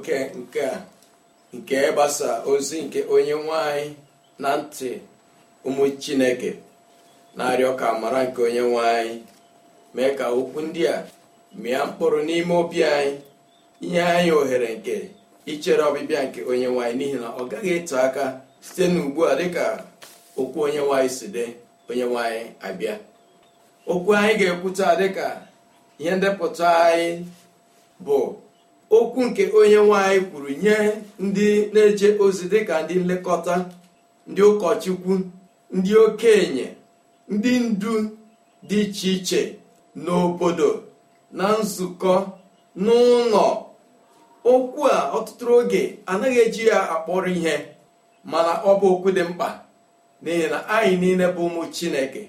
oke nke a nke ịgbasa ozi nke onye nwanyị na ntị ụmụ chineke na-arịọ ka amara nke onye nwanyị mee ka okwu ndị a mịa mkpụrụ n'ime obi anyị inye anyị ohere nke ichere ọbịbịa nke onye nwanyị n'ihi na ọ gaghị eto aka site n'ugbu a dịka okwu onye nwanyị si dị onye nwanyị abịa okwu anyị ga-ekwuta dịka ihe ndepụta anyị bụ okwu nke onye nwanyị kwuru nye ndị na-eje ozi dịka ndị nlekọta ndị ụkọchukwu ndị okenye ndị ndu dị iche iche n'obodo na nzukọ n'ụlọ okwu a ọtụtụ oge anaghị eji ya akpọrọ ihe mana ọ bụ okwu dị mkpa n'ihi na anyị niile bụ ụmụ chineke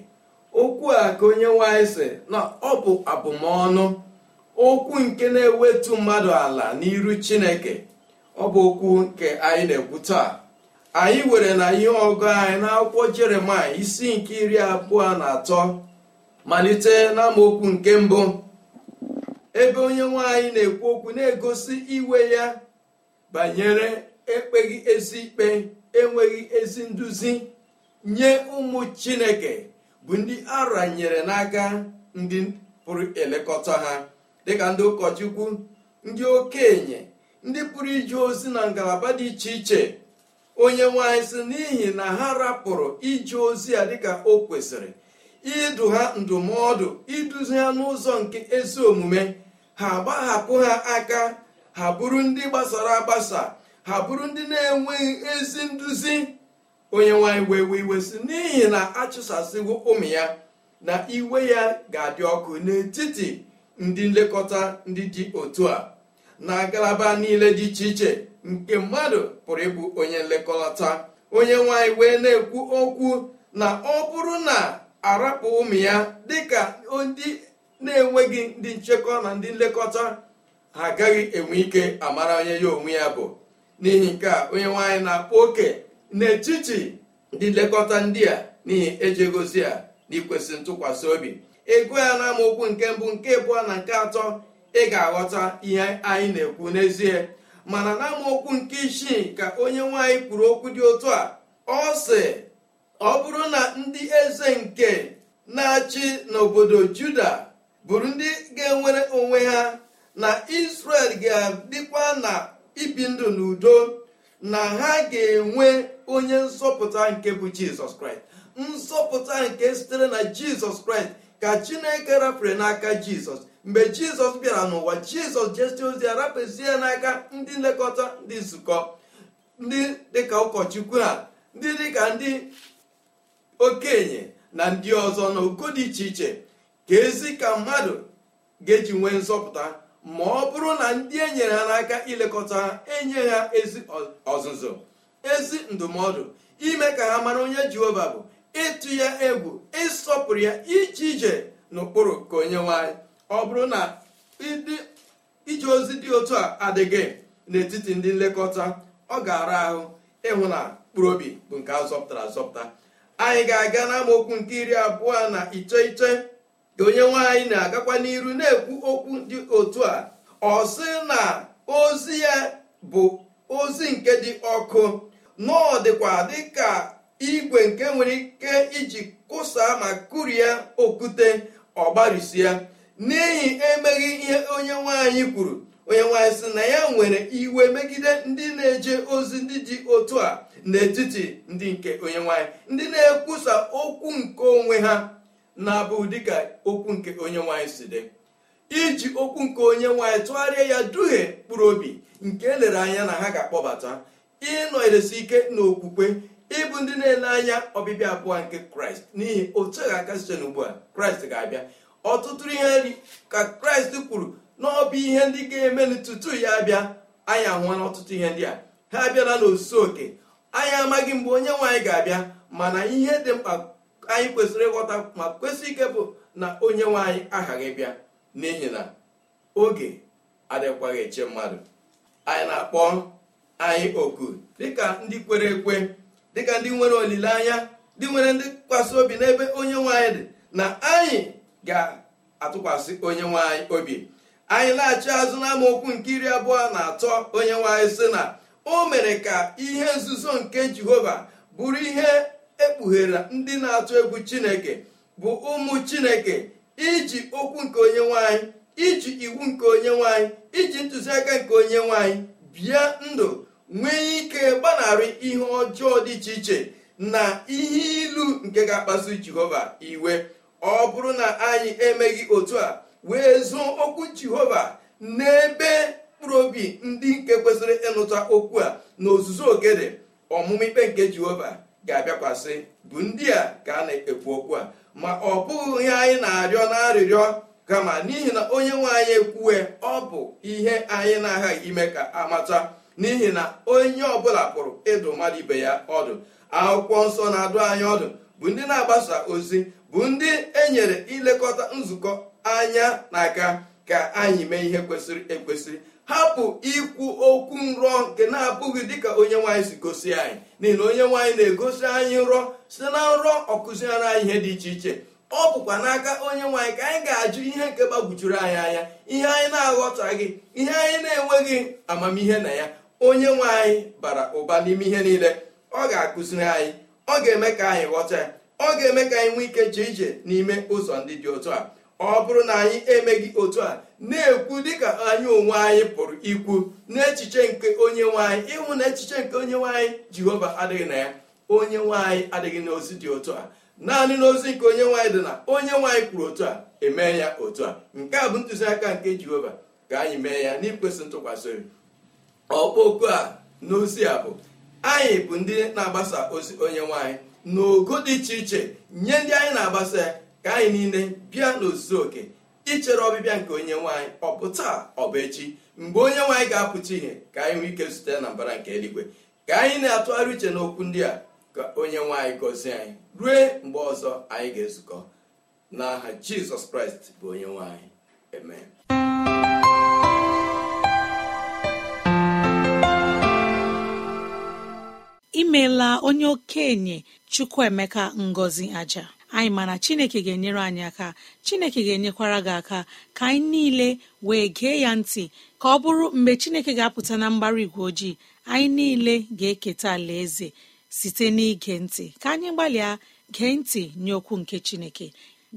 okwu a ka onye nwanyị sị na ọ bụ abụmọnụ okwu nke na-ewetu mmadụ ala n'iru chineke ọ bụ okwu nke anyị na-ekwu taa anyị were na ihe ọgụ anyị n'akwụkwọ jeremaya isi nke iri abụọ na atọ malite n'amaokwu nke mbụ ebe onye nwanyị na-ekwu okwu na-egosi iwe ya banyere ekpeghị ezi ikpe enweghị ezi nduzi nye ụmụ chineke bụ ndị aranyere n'aka ndị pụrụ elekọta ha dịka ndị ụkọchukwu ndị okenye ndị pụrụ ije ozi na ngalaba dị iche iche onye nwanyị si n'ihi na ha rapụrụ ije ozi ya dịka o kwesịrị idu ha ndụmọdụ iduzi ha n'ụzọ nke ezi omume ha gbahapụ ha aka ha bụrụ ndị gbasara agbasa ha bụrụ ndị na-enweghị ezi nduzi onye nwanyị wee wee iwe si n'ihi na achụsasịwo ụmụ ya na iwe ya ga-adị ọkụ n'etiti ndị nlekọta ndị dị otu a na ngalaba niile dị iche iche nke mmadụ pụrụ ịbụ onye nlekọta onye nwanyị wee na-ekwu okwu na ọ bụrụ na arapụ ụmụ ya dịka ndị na-enweghị ndị nchekwa na ndị nlekọta ha agaghị enwe ike amara onye ya onwe ya bụ n'ihi nke a onye nwanyị na-akpọ oke n'etiti ndị nlekọta ndị a n'ihi ejegozi a n'ikwesị ntụkwasị obi ego ya na amaokwu nke mbụ nke abụọ na nke atọ ị ga-aghọta ihe anyị na-ekwu n'ezie mana na amaokwu nke isii ka onye nwaanyị kwuru okwu dị otu a ọ ọ bụrụ na ndị eze nke na-achị n'obodo juda bụrụ ndị ga-enwere onwe ha na israel ga-adịkwa na ibi ndụ n'udo na ha ga-enwe onye nzọpụta nke bụ jizọs kraịst nzọpụta nke sitere na jizọs kraịst ka chineke rafere n'aka jizọs mgbe jizọs bịara n'ụwa jizọs jesie ozi ya rapụzie n'aka ndị nlekọta ndị nzukọ ndị dịka ụkọchukwu a ndị dịka ndị okenye na ndị ọzọ na dị iche iche ka ezi ka mmadụ ga-eji nwee nzọpụta ma ọ bụrụ na ndị e nyere ha n'aka ilekọta ha enye ha ezi ọzụzụ ezi ndụmọdụ ime ka ha mara onye jehova bụ ịtụ ya egwu ịsọpụrụ ya ije ije n'ụkpụrụ ka onye nwanyị ọ bụrụ na ije ozi dị otu a adịghị n'etiti ndị nlekọta ọ ga-ara ahụ ịhụ na mkpụrụ obi bụ nke azọpụtara azọpụta anyị ga-aga n'amaokwu nke iri abụọ na iteghete ka onye nwaanyị na-agakwa n'iru na-ekwu okwu dị otu a ọ sị na ozi ya bụ ozi nke dị ọkụ na dịkwa dịka igwe nke nwere ike iji kụsaa ma kụrie okwute ya n'ihi emeghị ihe onye nwanyị kwuru onye nwanyị si na ya nwere iwe megide ndị na-eje ozi ndị dị otu a n'etiti ndị nke onye nwanyị ndị na-ekwusa okwu nke onwe ha na-abụ dịka okwu nke onye nwanyị si dị iji okwu nke onye nwanyị tụgharịa ya duhie mkpụrụ obi nke elere anya na ha ga-akpọbata ịnọdesi ike n'okwukwe ịbụ ndị na-ele anya ọbịbịa abụọ nke kraịst n'ihi otu a ga-aka site n'ugbu a kraịst ga-abịa ọtụtụ ihe nri ka kraịst kwuru na ọ bụ ihe ndị ga-eme tutu ya abịa anyị ahụwa n'ọtụtụ ihe ndị a ha abịala n'osu oke anyị amaghị mgbe onye nwe anyị ga-abịa mana ihe dị mkpa anyị kwesịrị ịghọta ma kwesịrị ike bụ na onye nwanyị anyị aghaghị bịa n'ihi na oge adịkwaghị eche mmadụ anyị na-akpọ anyị oku dịka ndị kwere ekwe dịka ndị nwere olileanya ndị nwere ndị tụkwasị obi n'ebe onye nwaanyị dị na anyị ga-atụkwasị onye nwaanyị obi anyị laghachi azụ n'amaokwu nke iri abụọ na atọ onye nwaanyị sị na o mere ka ihe nzuzo nke jehova bụrụ ihe ekpughere ndị na-atụ egwu chineke bụ ụmụ chineke iji okwu nke onye nwaanyị iji iwu nke onye nwaanyị iji ntụziaka nke onye nwaanyị bịa ndụ nwee ike gbanarị ihe ọjọọ dị iche iche na ihe ilu nke ga-akpasu jehova iwe ọ bụrụ na anyị emeghị otu a wee zụọ okwu jehova n'ebe mkpụrụ obi ndị nke kwesịrị ịnụta okwu a na ogede ọmụmụ ikpe nke jehova ga-abịakwasị bụ ndị a ka a na-ekwu okwu a ma ọ bụghị ihe anyị na-arịọ na-arịrịọ kama n'ihi na onye nwe anyị ekwuwe ọ bụ ihe anyị na-aghaghị ime ka amata n'ihi na onye ọbụla pụrụ ịdụ mmadụ ibe ya ọdụ akwụkwọ nsọ na-adụ anyị ọdụ bụ ndị na-agbasa ozi bụ ndị enyere ilekọta nzukọ anya na aka ka anyị mee ihe kwesịrị ekwesị hapụ ikwu okwu nrọ nke na-abụghị dịka onye nwaanyị si gosi anyị n'ihi na onye nwaanyị na-egosi anyị nrọ site na nrọ ọkụziere anyị ihe dị iche iche ọ bụkwa n'aka onye nwaanyị ka anyị ga-ajụ ihe nke gbagwujuru anyị anya ihe anyị na-aghọtaghị ihe anyị na-enweghị amamihe na ya onye nwe anyị bara ụba n'ime ihe niile ọ ga-akụziri anyị ọ ga-eme ka anyị ghọta ya ọ ga-eme ka anyị nwee ike jee ije n'ime ụzọ ndị dị otu a ọ bụrụ na anyị emeghị otu a na-ekwu dịka anyị onwe anyị pụrụ ikwu n'echiche nke onye nwanyị ịhụ na echiche nke onye nwanyị jihova jehova adịghị na ya onye nwanyị adịghị adịghị n'ozi dị otu a naanị n'ozi nke onye nwanyị dị na onye nwanyị kwuru otu a emee ya otu a nke a bụ ntụziaka nke jehova ka anyị mee ya n'ikwesị ntụkwasị obi ọkpọku a n'ozi a bụ anyị bụ ndị na-agbasa ozi onye nwanyị n'ogo dị iche iche nye ndị anyị na-agbasa ya ka anyị niile bịa n'ozuzu oke ichere ọbịbịa nke onye nwanyị ọ bụ taa ọ bụ echi mgbe onye nwanyị ga-apụta ihe ka anyị nwee ike zute na mbara nke eluigwe ka anyị na-atụgharị uche n'okwu ndị a ka onye nwanyị gọzie anyị rue mgbe ọzọ anyị ga-ezukọ n'aha jizọs kraịst bụ onye nwanyị amen imeela onye okenye chukwuemeka ngọzi aja anyị mana chineke ga-enyere anyị aka chineke ga-enyekwara gị aka ka anyị niile wee gee ya ntị ka ọ bụrụ mgbe chineke ga-apụta na mgbara igwe ojii anyị niile ga-eketa alaeze site n'ige ntị ka anyị gbalịa gee ntị nye okwu nke chineke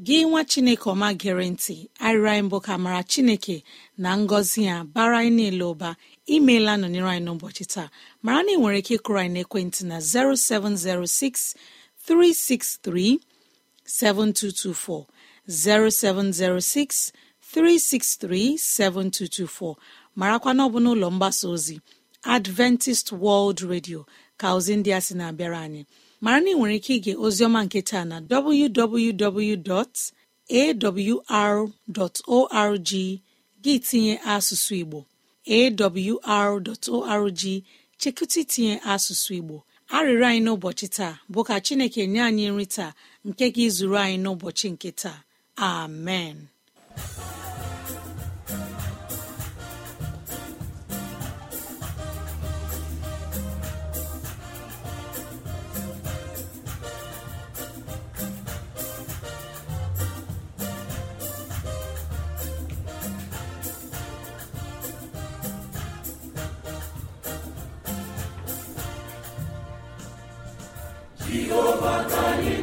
gị nwa chineke ọma gere ntị arịrị mbụ ka mara chineke na ngọzi ya bara anyị niile ụba imeela nọnyere anyị n'ụbọchị taa mara na ị nwere ike ịkụrụ anyị n'ekwentị na 0706 363 7224 0706 363 7224 marakwa na n'ụlọ mgbasa ozi Adventist World Radio ka ozi ndị a sị na-abịara anyị mara na ị nwere ike ige ozioma nke taa na www.awr.org gị tinye asụsụ Igbo awr.org chekụta itinye asụsụ Igbo arịrịọ anyị n'ụbọchị taa bụ ka Chineke nye anyị nri taa nke ga-ezuru anyị n'ụbọchị nke taa amen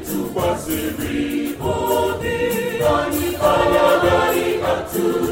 tụkwasịrị obi anyị atụ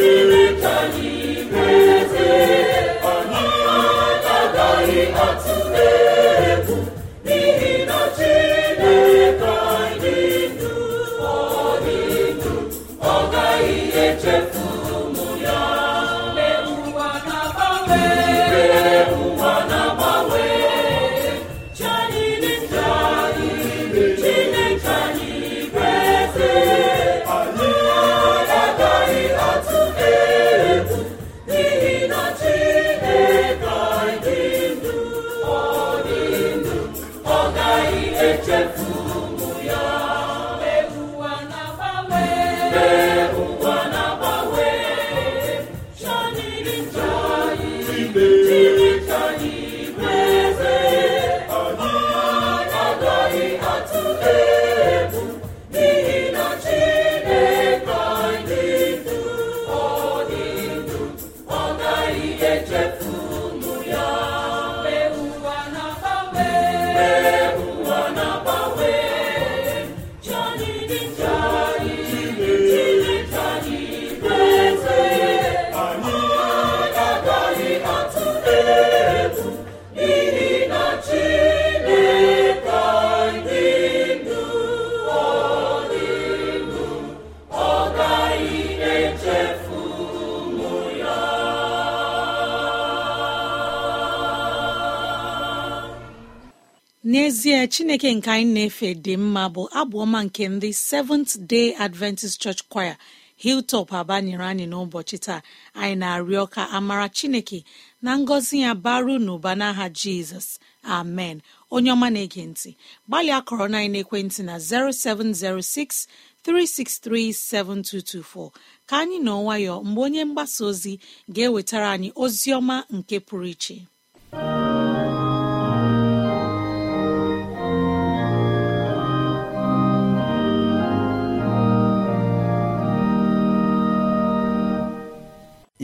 ee chineke nke anyị na-efe dị mma bụ abụọma nke ndị seventh day adventist church choir hilltop aba nyere anyị n'ụbọchị taa anyị na-arịọ ka amara chineke na ngọzi ya baru n'ụba n'aha jizọs amen onye ọma na-ege ntị gbalịa akọrọ na ekwentị na 0706 ka anyị nọ nwayọọ mgbe onye mgbasa ozi ga-ewetara anyị ozi ọma nke pụrụ iche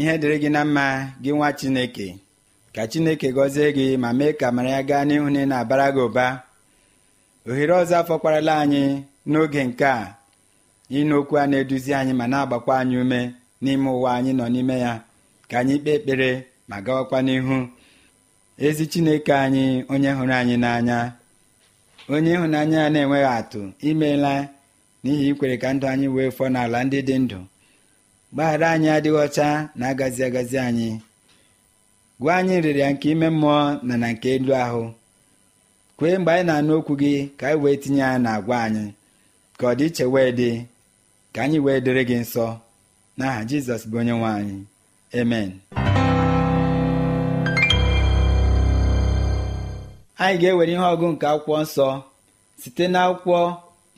ihe dịrị gị na mma gị nwa chineke ka chineke gọzie gị ma mee ka mara ya gaa n'ihu na ị na-abara gị ụba ohere ọzọ afọkwarala anyị n'oge nke a ịnụ okwu a na-eduzi anyị ma na-agbakwa anyị ume n'ime ụwa anyị nọ n'ime ya ka anyị kpee ekpere ma gawakwa n'ihu ezi chineke anyị onye hụrụ anyị n'anya onye ịhụnanya ya na-enweghị atụ imeela n'ihi ikwere ka ndụ anyị wee fọọ n'ala ndị dị ndụ gbaghara anyị adịghị ọcha na agazi agazi anyị gwa anyị nrịrịa nke ime mmụọ na na nke elu ahụ kwee mgbe anyị na-anụ okwu gị ka anyị wee tinye ya na agwa anyị ka ọ dị iche wee dị ka anyị wee dịrị gị nsọ n'aha jizọs bụ onye nwe anyị amen anyị ga-ewere ihe ọgụ nke akwụkwọ nsọ site n'akwụkwọ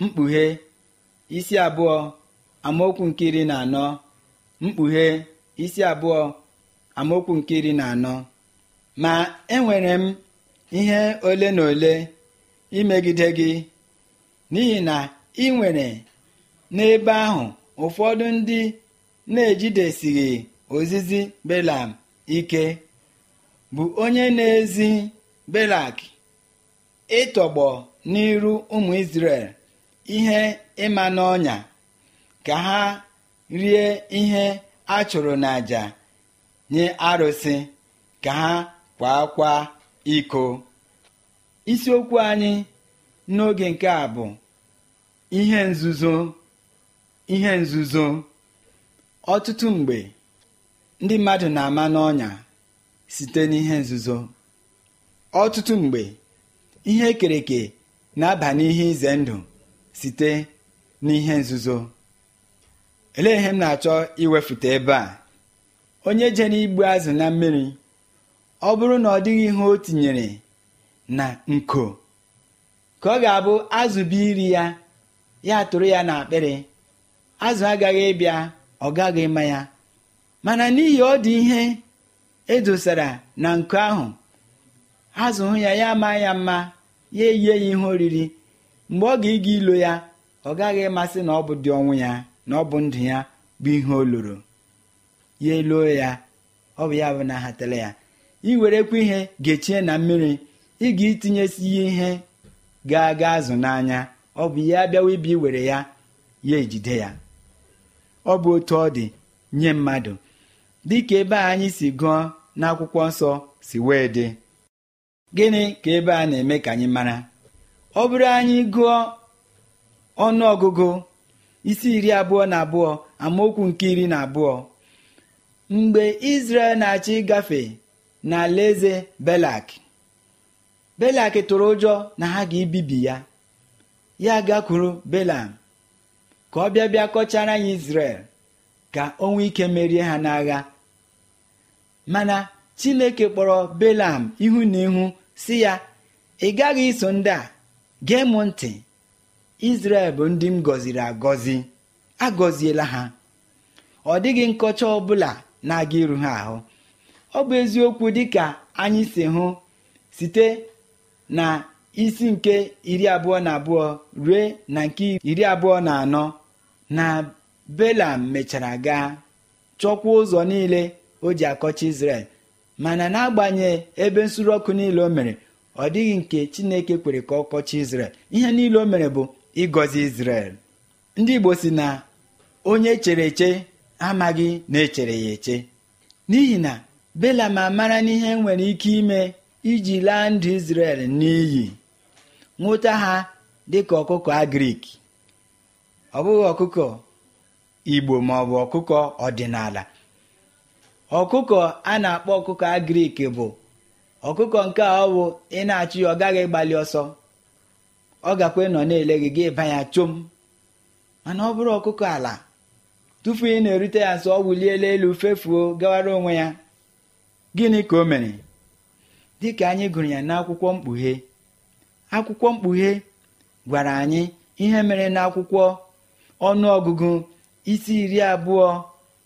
mkpughe isi abụọ amaokwu nke iri na anọ mkpughe isi abụọ amaokwu nke iri na anọ ma enwere m ihe ole na ole imegide gị n'ihi na ị nwere n'ebe ahụ ụfọdụ ndị na-ejidesighị ozizi belam ike bụ onye na-ezi belak ịtọgbọ n'iru ụmụ isrel ihe ịma n'ọnya ka ha rie ihe a chụrụ n'àjà nye arụsị ka ha kwa kwa iko isiokwu anyị n'oge nke a bụ ihe nzuzo ihe nzuzo ọtụtụ mgbe ndị mmadụ na-ama n'ọnya site n'ihe nzuzo ọtụtụ mgbe ihe ekereke na-aba n'ihe ize ndụ site n'ihe nzuzo elee ihe m na-achọ iwefute ebe a onye jere igbu azụ na mmiri ọ bụrụ na ọ dịghị ihe o tinyere na nko ka ọ ga-abụ azụ bụ iri ya ya tụrụ ya akpịrị azụ agaghị ịbịa ọ gaghị ịma ya mana n'ihi ọ dị ihe edosara na nko ahụ azụ hụ ya ya ama ya mma ya eyie ya ihe oriri mgbe ọ ga-ịga ilo ya ọ gaghị ịmasị na ọ bụ dị ọnwụ ya na ọ bụ ndụ ya bụ ihe o loro ya eluo ya ọ bụ ya bụ na ahatala ya i werekwa ihe gechie na mmiri ị ga itinyesi ya ihe ga-aga azụ n'anya ọ bụ ya bịawa ibi iwere ya ya ejide ya ọ bụ otu ọ dị nye mmadụ dịka ebe a anyị si gụọ n'akwụkwọ nsọ si wee dị gịnị ka ebe a na-eme ka anyị mara ọ bụrụ anyị gụọ ọnụ ọgụgụ isi iri abụọ na abụọ amaokwu nke iri na abụọ mgbe Izrel na-achị gafe na eze belak belak tụrụ ụjọ na ha ga-ebibi ya ya gakwuru belam ka ọ bịa bịa kọchara anyị Izrel ka o nwee ike merie ha n'agha mana Chineke kpọrọ belam ihu na ihu si ya ị gaghị iso ndị a gee m ntị izrel bụ ndị m gọziri agọzi agọziela ha ọ dịghị nkọcha ọbụla na-aga iru ha ahụ ọ bụ eziokwu dịka anyị si hụ site na isi nke iri abụọ na abụọ rue na nke iri abụọ na anọ na belam mechara gaa chọkwa ụzọ niile o ji akọcha izrel mana n'agbanyeghị ebe nsuru ọkụ niile o mere ọ dịghị nke chineke kwere ka ọ kọcha izrel ihe niile o mere bụ ịgọzi Izrel ndị Igbo si na onye chere eche amaghị na echere ya eche n'ihi na ma amara n'ihe nwere ike ime iji laa ndụ Izrel n'iyi nwụta ha dịka ọkụkọ agrik ọ bụghị ọkụkọ Igbo ma ọ bụ ọkụkọ ọdịnala ọkụkọ a na-akpọ ọkụkọ agrik bụ ọkụkọ nke ọ bụ ị na-achụ ya ọ gaghị gbalị ọsọ ọ gakwa ịnọ na-ele gị gị ịba ya chom mana ọ bụrụ ọkụkọ ala tupu ị na-erute ya sọ ọ wuliela elu fefuo gawara onwe ya gịnị ka o mere dị ka anyị gụrụ ya n'akwụkwọ mkpughe akwụkwọ mkpughe gwara anyị ihe mere n'akwụkwọ ọnụọgụgụ isi iri abụọ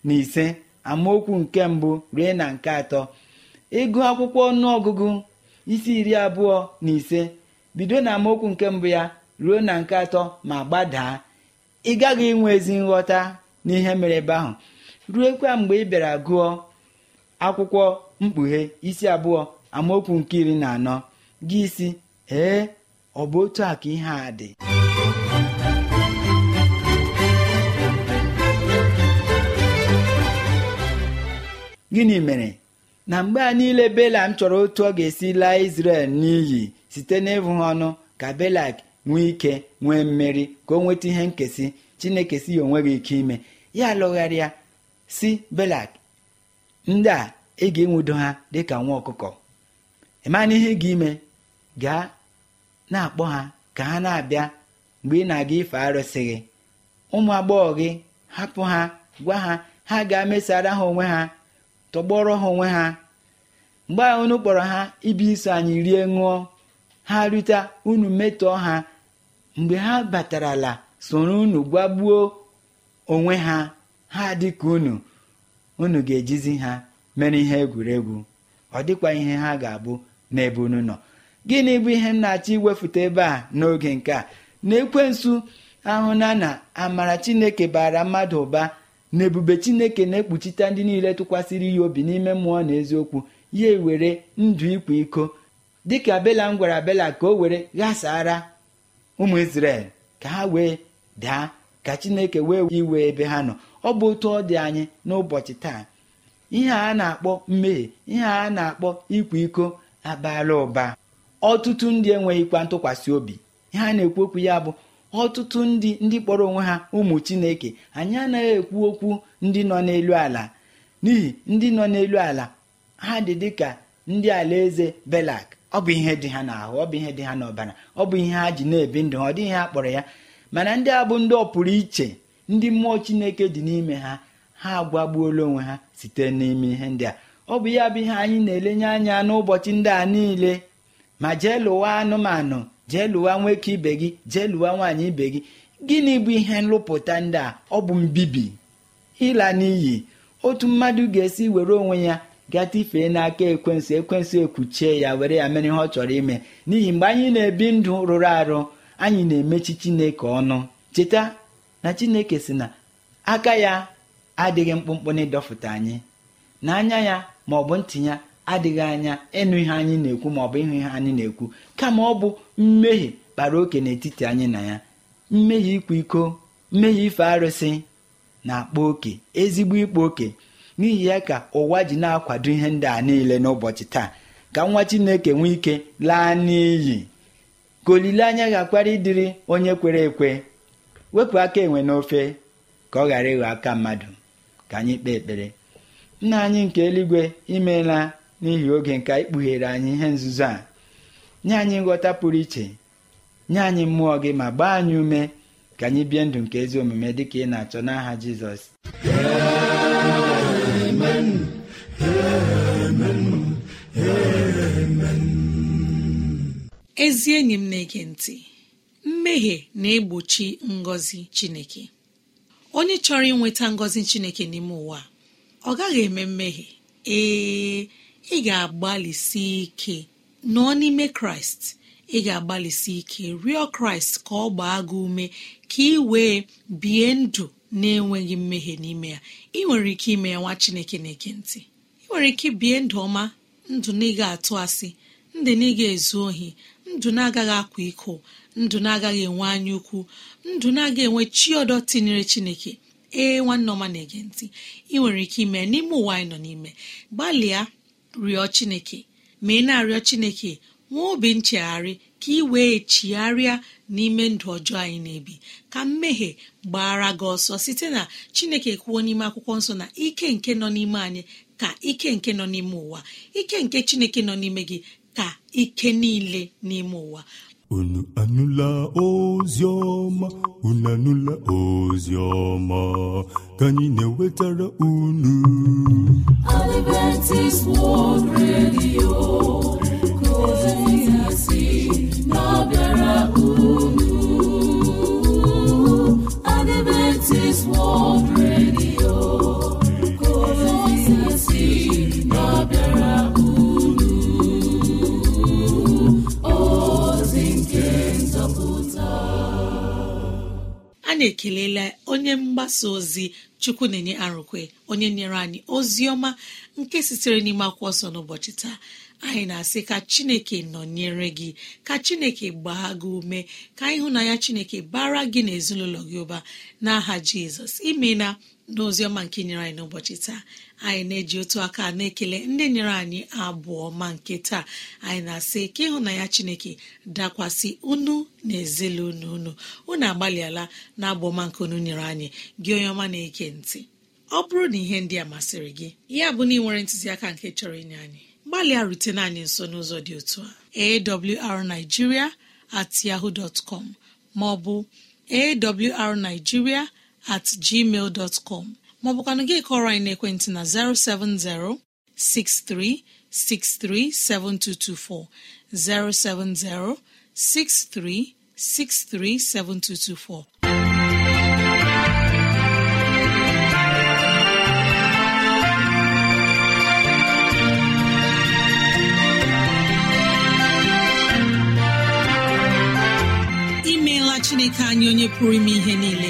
na ise amaokwu nke mbụ rue na nke atọ ịgụ akwụkwọ ọnụọgụgụ isi iri abụọ na ise bido na amaokwu nke mbụ ya ruo na nke atọ ma gbadaa ị gaghị inwe ezi nghọta n'ihe mere ebe ahụ ruekwa mgbe ị bịara gụọ akwụkwọ mkpughe isi abụọ amaokwu nke iri na anọ gị isi ee ọ bụ otu a ka ihe a dị gịnị mere na mgbe a niile bela m chọrọ otu ọ ga-esi laa Izrel n'iyi site n'ịbụ ha ọnụ ka belak nwee ike nwee mmeri ka o nweta ihe nkesị chineke si ya onweghị ike ime ya lụgharịa si belak ndị a ị ga-enwudo ha dịka nwa ọkụkọ ịmana ihe gị ime gaa na-akpọ ha ka ha na-abịa mgbe ị na-aga ife arụsị gị ụmụ agbọghọ gị hapụ ha gwa ha ha ga mesara ha onwe ha tọgbọrọ ha onwe ha mgbe ahụ unu kpọrọ ha ibi iso anyị rie ṅụọ ha rute unu metọọ ha mgbe ha batarala soro unu gwagbuo onwe ha ha dịka unu unu ga-ejizi ha mere ihe egwuregwu ọ dịkwa ihe ha ga-abụ n'ebe unu nọ gịnị bụ ihe m na-achọ iwefute ebe a n'oge nke a na ekwensu ahụna na amara chineke bara mmadụ ụba na ebube chineke na-ekpuchite ndị niile tụkwasịrị ya obi n'ime mmụọ na eziokwu ya ewere ndụ ịkwa iko dịka belam gwara bela ka o were ghasara ụmụ isrel ka ha wee daa ka chineke wee iwe ebe ha nọ ọ bụ otu ọ dị anyị n'ụbọchị taa ihe a na-akpọ mmehie ihe a na-akpọ ikwa iko abala ụba ọtụtụ ndị enweghịkwa ntụkwasị obi ihe a na-ekwu okwu ya bụ ọtụtụ ndị ndị kpọrọ onwe ha ụmụ chineke anyị anaghị ekwu okwu ndị nọ n'elu ala n'ihi ndị nọ n'elu ala ha dị dịka ndị alaeze belak ọ bụ ihe dị ha n'ahụ ọ bụ ihe dị ha n'ọbara ọ bụ ihe ha ji na-ebi ndụ ha ọ dịghị ha kpọrọ ya mana ndị a bụ ndị ọpụrụ iche ndị mmụọ chineke dị n'ime ha ha agwagbuola onwe ha site n'ime ihe ndị a ọ bụ ya bụ ihe anyị na-elenye anya n'ụbọchị ndị a niile ma jee lụwa anụmanụ jee lụwa nwoke ibe gị jee lụwa nwaanyị ibe gị gịnị bụ ihe nlụpụta ndị a ọ bụ mbibi ịla n'iyi otu mmadụ ga-esi were onwe ya ifee n'aka ekwensu ekwensu ekwuchie ya were ya mere ihe ọ chọrọ ime n'ihi mgbe anyị na-ebi ndụ rụrụ arụ anyị na-emechi chineke ọnụ cheta na chineke si na aka ya adịghị mkpụmkpụ na ịdọfụta anyị na anya ya ma ọ bụ ntị ya adịghị anya ịnụ ihe anyị na-ekwu ma ọ bụ ịhụ ihe anyị na-ekwu kama ọ bụ mmehie kpara oke n'etiti anyị na ya mmehie ịkwa iko mmehie ife arụsị na-akpa oke ezigbo ịkpa oke n'ihi ya ka ụwa ji na-akwado ihe ndị a niile n'ụbọchị taa ka nwa chineke nwee ike laa n'iyi ka olileanya ga-akwara ịdịrị onye kwere ekwe wepụ aka enwe n'ofe ka ọ ghara ịghọ aka mmadụ ka anyị kpee ekpere nna anyị nke eluigwe imeela n'ihi oge nke ikpughere anyị ihe nzuzo a nye anyị nghọta pụrụ iche nye anyị mmụọ gị ma gbaa anyị ume ka anyị bie ndụ nke ezi omume dị ka ị na-achọ n'aha Jizọs ezi enyi m na-ege ntị mmehie na-egbochi ngọzi chineke onye chọrọ inweta ngọzi chineke n'ime ụwa ọ gaghị eme mmehie ee ị ga-agbalịsi ike nọọ n'ime kraịst ị ga-agbalịsi ike rịọ kraịst ka ọ gbaa gị ume ka ị wee bie ndụ na-enweghị mmehie n'ime ya ị nwere ike ime ya nwa chineke na-eke ntị ị nwere ike bie ndụ ọma ndụ na ị ga-atụ asị ndị na ị ga-ezu ohi ndụ na-agaghị akwa iko ndụ na-agaghị enwe anya ukwu ndụ na-aga enwe chi ọdọ tinyere chineke ee nwanne ọma na-ege ntị ị nwere ike ime n'ime ụwa anyị nọ n'ime gbalịa rịọ chineke ma ị na-arịọ chineke nwee obi nchegharị ka ị wee chigharịa n'ime ndụ ọjọọ anyị na-ebi ka mmehie gbara gị ọsọ site na chineke kwuo n'ime akwụkwọ nsọ na ike nke nọ n'ime anyị ka ike nke nọ n'ime ụwa ike nke chineke nọ n'ime gị ka ike niile n'ime ụwa unu anụla ozi ọma unu anụla ozi ọma ka anyị na-ewetara unu Adventist World Radio na ekelela onye mgbasa ozi chukwu na-enye arụkwe onye nyere anyị ozi ọma nke sitere n'ime akwụkwọ ọsọ n'ụbọchị taa anyị na-asị ka chineke nọnyere gị ka chineke gbaa gị ume ka na ya chineke bara gị na gị ụba n'aha jizọs imela n'oziọma nke nyere anyị n'ụbọchị taa anyị na-eji otu aka na-ekele ndị nyere anyị abụọ ma nke taa anyị na-asị ka ịhụnanya chineke dakwasị unu na ezelunu unu unu agbalịala na abụọma nke unu nyere anyị gị onye ọma na-eke ntị ọ bụrụ na ihe ndị a masịrị gị ya bụ na ị nwere ntụziaka nke chọrọ inye anyị gbalịa rutena anyị nso n'ụzọ dị otu a awrnigeria at yahoo dot com maọbụ awrnigeria at gmail dot com maọbụkwanụ gị kọrọ anyị n'ekwentị na 07063637224 07063637224 imeela chineke anyị onye pụrụ ime ihe niile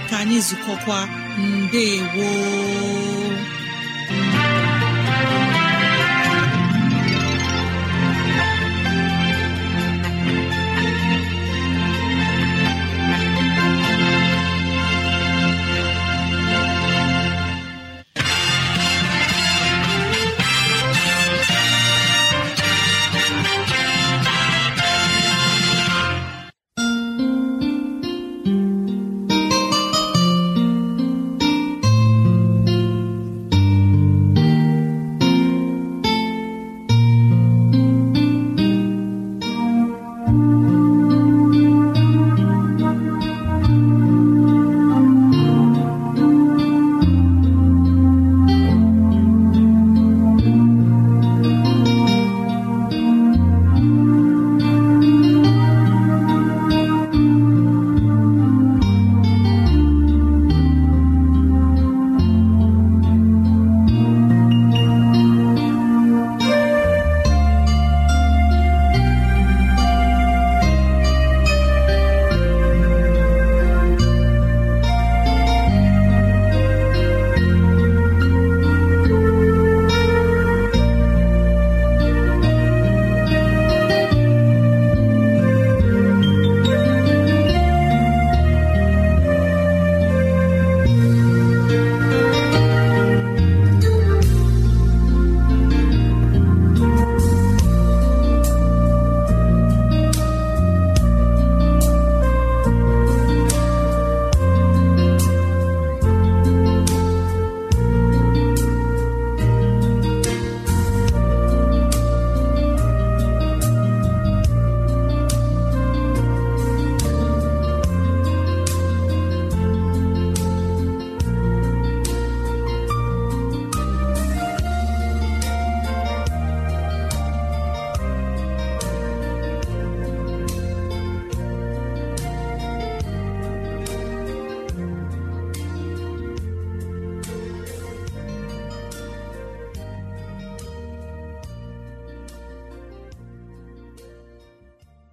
ka anyị zụkọkwa mbe